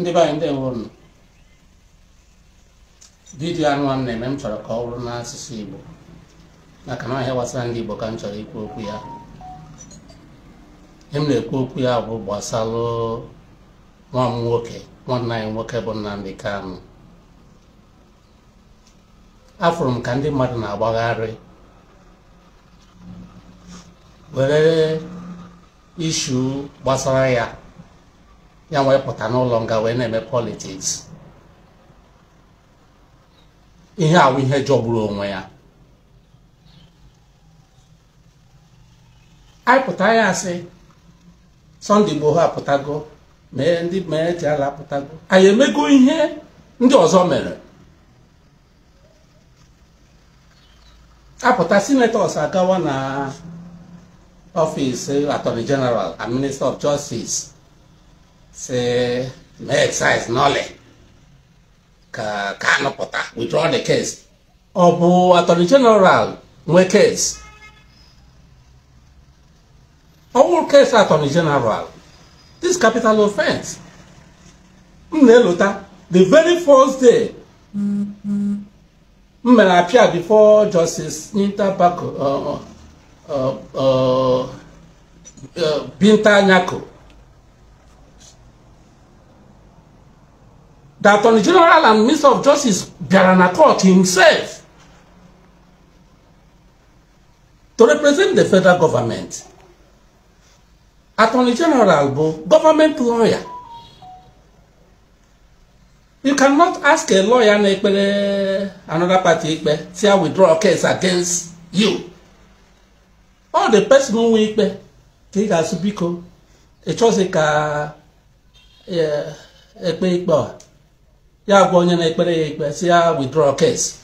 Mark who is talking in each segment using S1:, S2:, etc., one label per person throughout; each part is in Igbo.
S1: ndị be anyị ndewo unu vidiyo anụ na-eme m chọrọ ka ọ bụrụ n'asụsụ Igbo maka na ahịa gbasara ndị Igbo ka m chọrọ ikwu okwu ya e m na-ekwu okwu ya bụ gbasalụ nwa m nwoke nwanne anyị nwoke bụ Nnamdi Kanu afụrụ m ka ndị mmadụ na-agbagharị were ishu gbasara ya ya wee pụta n'ụlọ nga wee na-eme politiks ihe awụ ihe jọgburu onwe ya anyị pụta ya asị Sunday Igboho apụtago mee ndị mee ji ala apụtago anyị emego ihe ndị ọzọ mere apụta senators agawa na ọfịs attorney jeneral and minista of justice say make excise n'ole ka Kanu pụta withdraw the case ọ bụ attorney general nwe case ọwụrụ case attorney general this capital offense m na-elota the very first day m mere appear before justice Nita Bako uh, uh, uh, Binta Nyako the attorney general and minister of justice Biaranakot himself to represent the federal government attorney general bo government lawyer you cannot ask a lawyer na ekpere another party ekpe say i withdraw a case against you all the person nwe ikpe ka ị ga-asụ biko ị chọzi ka ekpe ikpe a ya gwa onye na-ekpere ya ikpe si ya withdraw case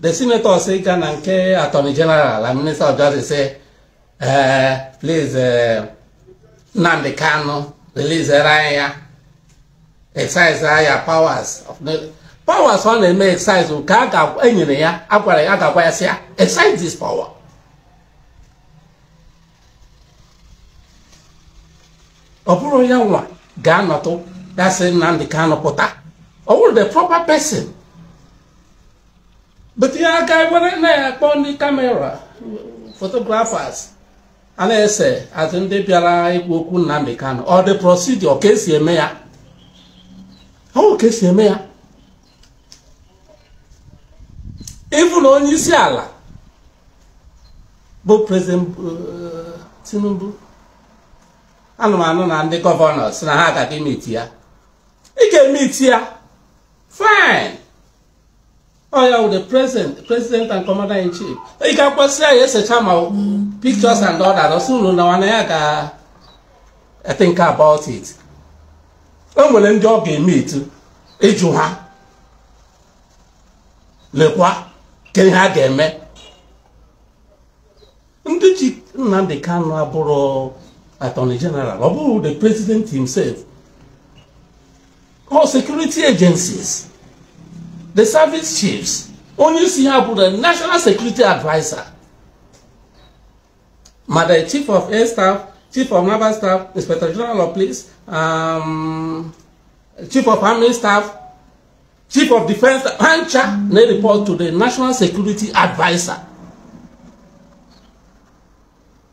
S1: the senator si ga na nke attorney general and minister of justice say eh, please eh, Nnamdi Kanu releasere anyị ya excise ya powers of powers ọ na-eme excise ka a enyere ya agwara ya agagwa ya si ya excise this power ọ bụrụ ya nwa ga-anọtụ that's Nnamdi Kanu pụta ọ wụrụ the proper person bute ya aka ewere na-akpọ ndị kamera photographers ala na-ese atụ ndị bịara ikwu okwu Nnamdi Kanu ọ dị procedure ka esi eme ya ọ ka esi eme ya ịbụ na onye isi ala bụ president uh, Tinubu ana anụ na ndị gọvanọ si ha agaghị emeti ị ga-eme ya fine ọ ya the president president and commander in chief ị ga-akwasị ya esecha ma pictures and all that ọsị na nwana ya ga think about it o nwere ndị ọ ga-eme ịjụ ha lekwa ke ha ga-eme ndị ji Nnamdi Kanu abụrụ attorney general ọ bụrụ the president himself all security agencies the service chiefs onyeisi ha bụ the national security adviser ma chief of air staff chief of naval staff inspector general of police um, chief of army staff chief of defence hancha they report to the national security adviser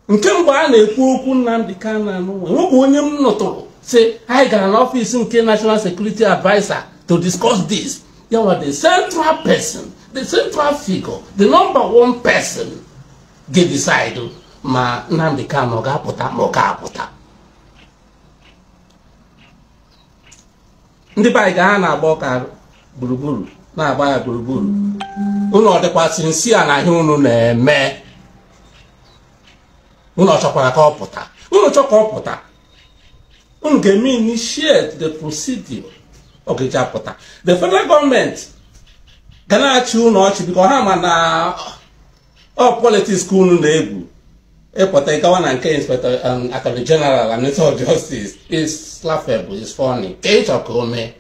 S1: Nkemba mgbe a na-ekwu okwu nnamdị kanu anụ nwoke onye m nụtụrụ say anyị gara n'ọfịs nke national security adviser to discuss this yawa the central person the central figure the number one person ga-decide ma Nnamdi Kanu ọ ga-apụta ma ọ ga-apụta ndị be anyị ga ha na-agba ọka gburugburu na-agba ya gburugburu unu ọ dịkwasị nsi a na ihe unu na-eme unu ọ chọkwara ka ọ pụta unu chọ ka ọ pụta Ungemi initiated the procedure. Okay, Chapota. The federal government cannot chew notch because Hamana or oh, politics school neighbor. Epota e and nke Inspector um, Attorney General and Minister of Justice is laughable, is funny. Kate Okome.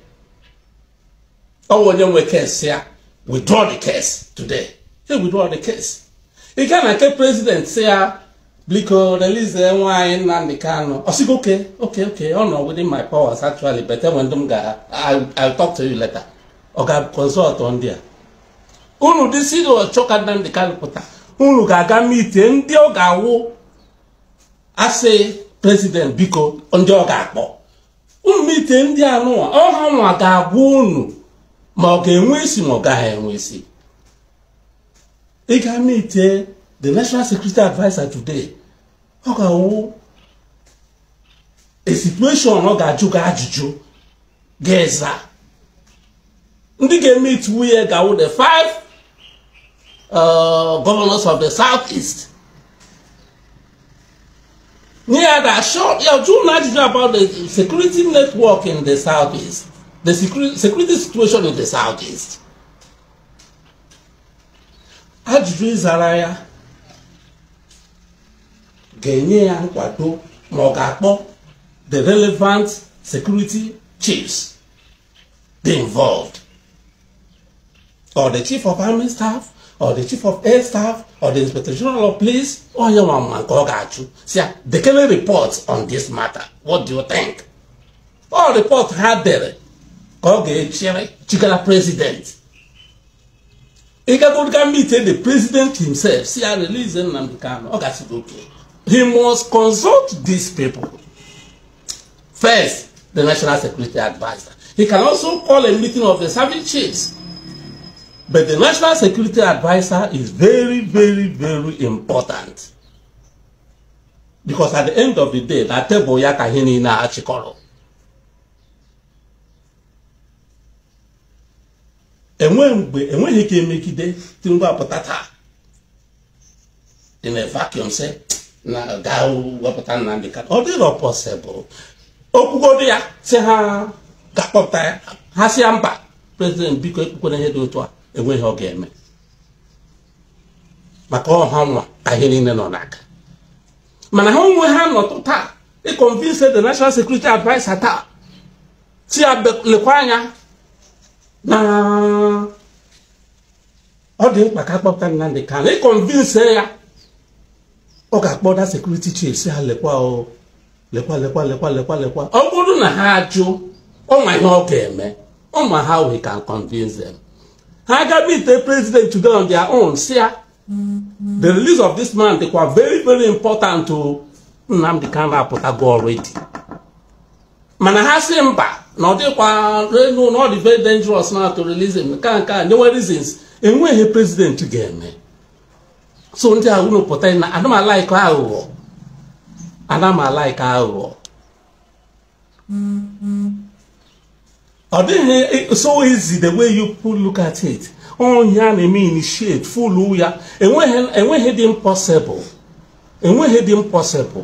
S1: Oh, when we case here, withdraw the case today. They withdraw the case. He Ikawana nke President say biko release e nwaanyị Nnamdi Kanu ọsịgo oke oke oke ọ nọ within my powers actually but e when m ga I'll talk to you later ọ ga consult ndị a unu dịsi chọka Nnamdi Kanu pụta unu ga-aga meet ndị ọ ga-awụ asị president biko ndị ọ ga-akpọ unu meet ndị anụwa ọha nwa ga-agwa unu ma ọ ga-enwe isi ma ọ gaghị enwe isi ịga ga meet the national security adviser today ọ ga a situation ọ ga-ajụ gị ajụjụ ga-eza ndị ga-eme itu nwunye ga-awụ the five uh, governors of the south east nye ya da ya jụụ ajụjụ about the security network in the south east the security situation in the south east ajụjụ ịzara ya ga-enye ya nkwado ma ọ ga-akpọ the relevant security chiefs dey involved or the chief of army staff or the chief of air staff or the inspector general of police onye nwa mma nke ọ ga-achụ si ya dekere report on this matter what do you think ọ report ha dere ka ọ ga-echere chigara president ịgagoriga meet the president himself si ya release Nnamdi Kanu ọ gasịrị oke he must consult these people. First, the National Security Advisor. He can also call a meeting of the service chiefs. But the National Security Advisor is very, very, very important. Because at the end of the day, that table ya kahini na achikoro. Enwe mgbe, enweghị ike emegide Tinubu apụta taa. In a vacuum, say, na gaa wepụta Nnamdi Kanu ọ dịrọ pọsịbụl okwugodo ya si ha ga-akpọpụta ya ha si ya mba prezident biko ekpukwere ihe dị otu a enweghị ọ ga-eme maka ọha nwa ahịa niile nọ n'aka mana ha onwe ha nọtụ taa ịkọnvinse the national security adviser taa si ya lekwa anya na ọ dị mkpa ka akpọpụta Nnamdi Kanu ịkọnvinse ya ọ ga-akpọ na sekuriti chief si ha lekwa lekwa lekwa lekwa lekwa lekwa ọ bụrụ na ha jụ ọnwa ihe ọ ga-eme nwa ha we can convince them ha gaba ite president to go on their own si ya the release of this man dịkwa very very important to Nnamdi apụta go already mana ha si mba na ọ dịkwa renu na ọ dị very dangerous na to release him nke nke a nyewe reasons enweghị president ga-eme so ndị a unu pụta na ana m alaik aghụghọ ana m aghụghọ ọ dịghị so easy the way you put look at it onye a na-eme initiate fulu ya enweghị dị impossible enweghị dị impossible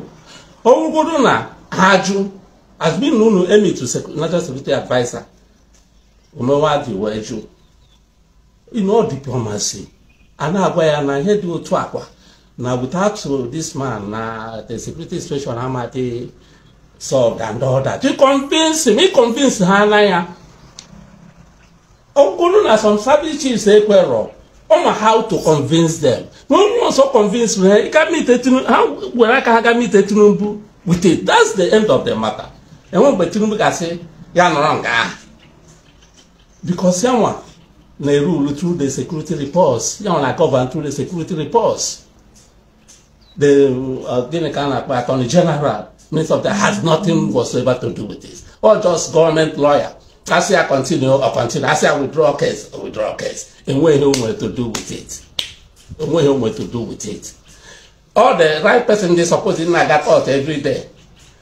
S1: ọwụgodo na ajụ azbin unu emetu national security adviser omewa dị wee jụ in all diplomacy a na-agwa ya na ihe dị otu akwa na without this man na the security situation amadị solved and all that to convince me convince ha na ya ọ na some service chiefs ekwerọ ọma how to convince them na onye ọzọ convince ha ha were aka ha ga mite Tinubu with it that's the end of the matter enwe mgbe Tinubu ga-asị ya nọrọ nke ahụ because ya nwa they rule through the security reports. You know, like govern through the security reports. The uh, Attorney General, Minister of the has nothing whatsoever to do with this. Or just government lawyer. say I continue or continue, say I withdraw case, or withdraw case. And what he want to do with it. And what he want to do with it. All the right person they supposing like that out every day.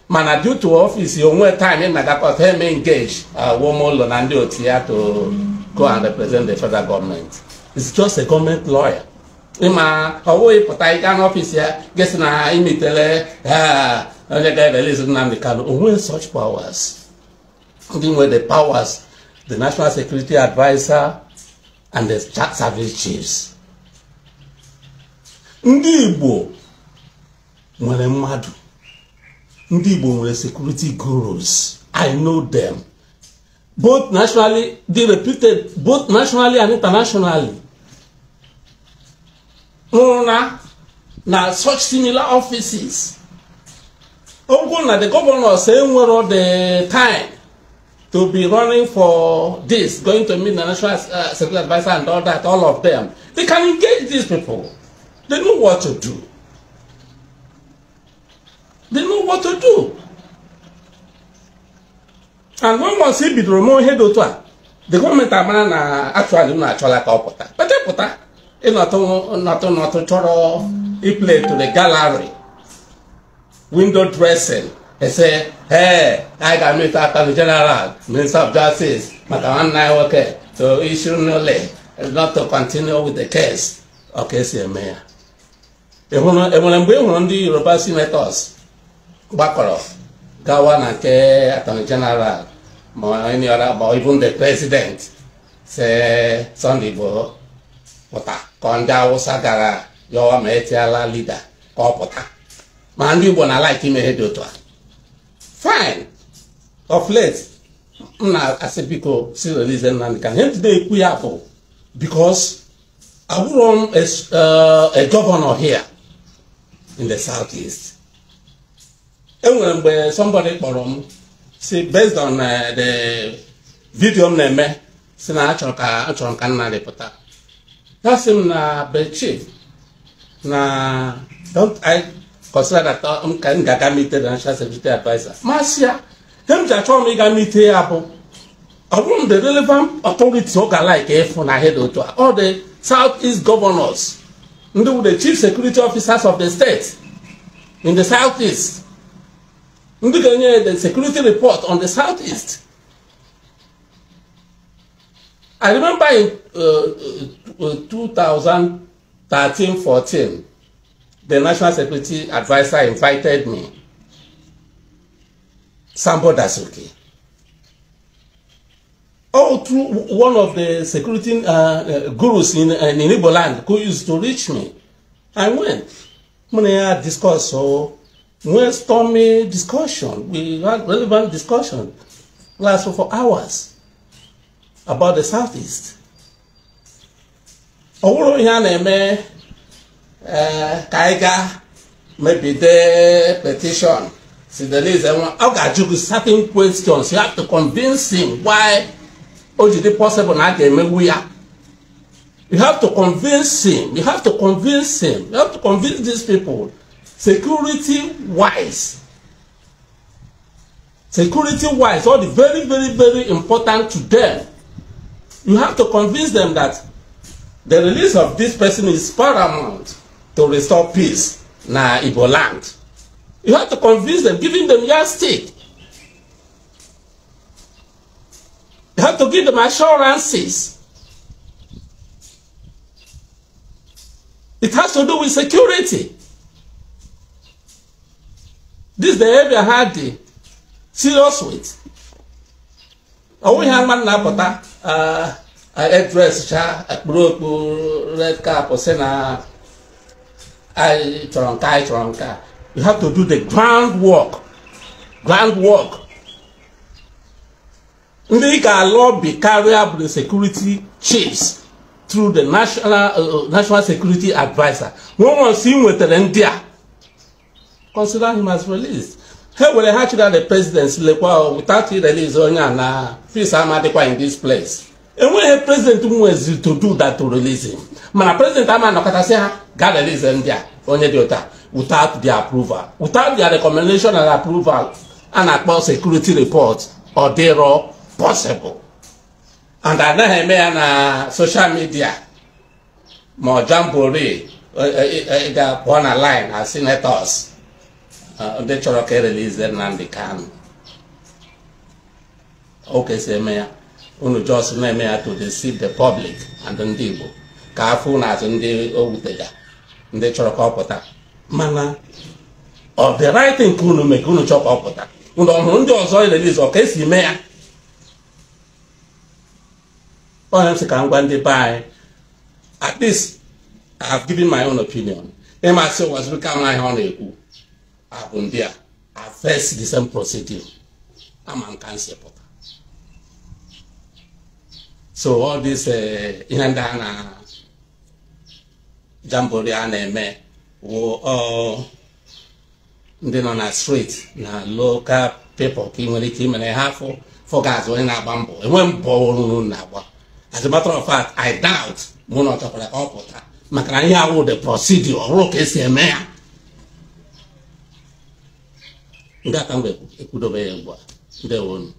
S1: mana due to office You want time na-agakọta eme engage uh, woman ụlọ and do otu ya to go and represent the federal government. It's just a government lawyer. in ịma ọwụ ịpụta ịga n'ọfịs ya gịsị na imetele onye ga-ereliz Nnamdi Kanu onwe such powers Even with the powers the national security adviser and the service chiefs Ndibo, Igbo nwere mmadụ ndị security gurus I know them both nationally, they repeated both nationally and internationally. Now, now such similar offices. Oguna, the governor, saying we're all the time to be running for this, going to meet the National uh, Security Advisor and all that, all of them. They can engage these people. They know what to do. They know what to do. and when once e bidoro mee ihe dị otu a the gọọmenti amara na actually m na-achọla ka ọ pụta pete pụta ịnọtụ nọtụ nọtụ chọrọ iple to the gallery window dressing ese ee anyị ga-amịta aka the general minister of justice maka nwanne anyị nwoke to issue nole not to continue with the case ọka esi eme ya enwere mgbe ị hụrụ ndị yoruba senators gbakọrọ gawa na nke attorney general manyara ma even the president say Sunday Igboho pụta ka ndị Awụsa gara yọwa ma etiala ọ ma ndi Igbo na like ime ihe dị otu a fine of late m na-asị biko si release e Nnamdi Kanu ihe dey ekwu ya bụ because abụrụ m a eh, governor here in the southeast enwere mgbe somebody kpọrọ m si based on uh, the video m na-eme si na achọrọ ka achọrọ ka nna rịpụta ya si m na bechi na don't i consider that uh, m ka m ga-aga mite the national security adviser masị ya ihe m ji achọ m ịga mite ya bụ ọ bụrụ the relevant authority ọ ga-alike ịfụ na head otu a all the south east governors ndị bụ the chief security officers of the state in the south east ndị ga-enye the security report on the southeast i remember in uh, uh, 2013-14 uh, the national security adviser invited me sambo dasuki all oh, through one of the security uh, uh gurus in, uh, in igbo land who used to reach me i went mụ na ya discuss so oh, no stormy discussion. We had relevant discussion lasted for hours about the Southeast. ọ bụrụ ihe a na-eme eh, ka anyị ga mebide petition sidelize nwa ọ ga-ajụ gị certain questions you have to convince him why o ji possible na a ga-emegbu ya you have to convince him you have to convince him you have to convince these people security wise security wise all the very very very important to them you have to convince them that the release of this person is paramount to restore peace na igbo land you have to convince them giving them your stake. you have to give them assurances it has to do with security this behavior ha dị serious with ọnwụ ihe ama na-apụta edres cha akpụrụ okpu red cap si na anyị chọrọ nke anyị chọrọ nke you have to do the groundwork, groundwork. ground work ndị ga-alụ bi karịa bụ the security chiefs through the national uh, uh national security adviser nwa nwa nsi nwetara ndị a consider him as released ha were ha chịrị the president lekwa without release onye a na peace amadikwa in this place enweghị president nwezi to do that to release him mana president ama anọkọtasị ha ga release ndị a onye dị ụta without their approval without their recommendation and approval a na-akpọ security report ọ dịrọ possible and anaghị eme ya na social media ma ọ jambore e, e, e, ga-apụọ na line as senators ndị uh, chọrọ ka erelize Nnamdi Kanu okesi eme ya unu jos na-eme ya to deceive the public and ndị Igbo ka afọ azụ ndị o wutega ndị chọrọ ka ọ pụta mana ọ dị right thing ka unu mee ka unu chọọ ka ọ pụta unu ọ hụrụ ndị ọzọ erelize ọ ka esi mee ya onye m sị ka m gwa ndị be anyị at least I have given my own opinion ịmasị ụwa zuru ka m ahịa ọ na-ekwu ndị a first the same procedure ama nka nsi pụta so ọ this uh, ihe ndị a na jambori a na-eme wụ ndị nọ na street na local people ka ị nwere ike imere ha afọ fọgaz onye na-agba mbọ enwe mbọ ọrụ na-agba as a matter of fact i doubt mụ na ọ chọkwara ka ọ pụta maka na ihe awụ the procedure ọrụ ka esi eme ya nke aka m ga-ekwudobe ya ugbu a ndewonu